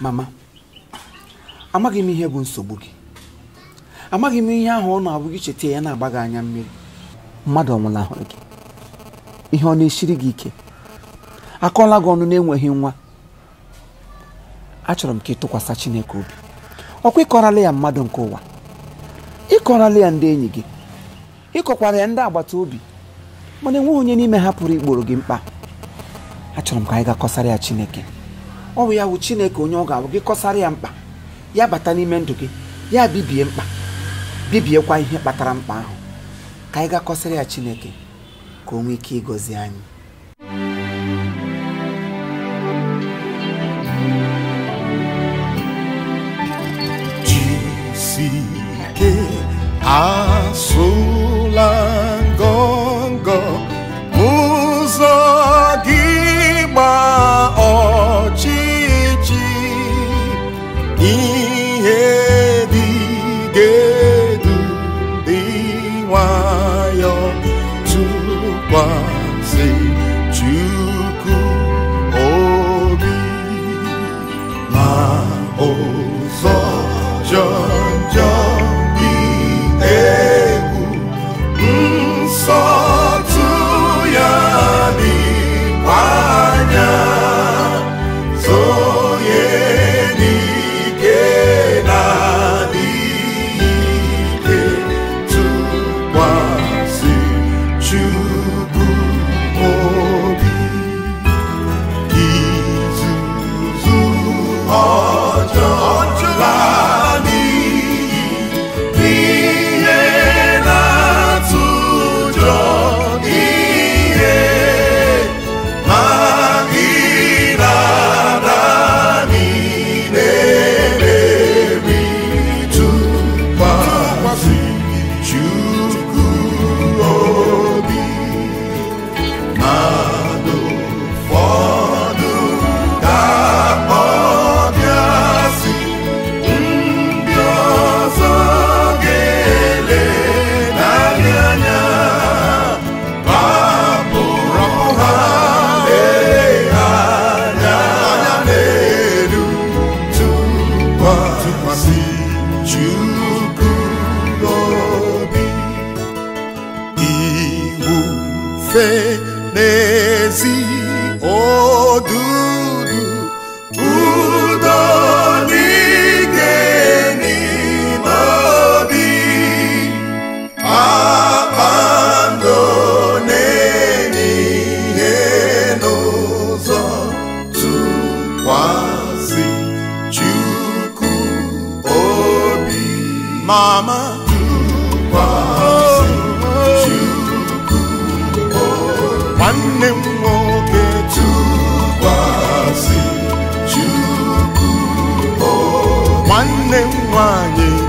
mama amaghị m ihe bụ nsogbu gị amaghị m ihe ahụ ọ na-abụ gị cheta ya na-agba gị anya mmiri mmadụ ọnwụla ahụrụ gị ihe ọ na-esiri gị ike akọọla gị ọnụ na-enweghị nwa achọrọ m ka ị tụkwasị Chineke obi ọkwa ịkọrala ya mmadụ nke ụwa ịkọrala ya ndị enyi gị ịkọkwara ya ndị agbata obi mana enweghị onye n'ime ha pụrụ igboro gị mkpa achọrọ m ka anyị ga kọsara ya Chineke ọ bụ ya wụ chineke onye ọ ga-abụ gị kọsara ya mkpa ya bata n'ime ndụ gị ya bibie mkpa bibiekwa ihe kpatara mkpa ahụ ka anyị ga ya chineke ka o nwee ike ịgọzi anyị ụbọchị it too ma ụzọ jọọ masịjukuobi iwu fe n'ezi odu Mama. nwanne m nwoke tụkwasị Chukwu nwanne m nwanyị